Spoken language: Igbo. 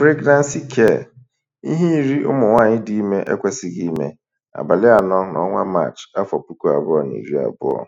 Pregnancy Care: Ihe iri ụmụ nwaanyị dị ime ekwesịghị ime, abalị anọ n'ọnwa Maachị, afọ puku abụọ na iri abụọ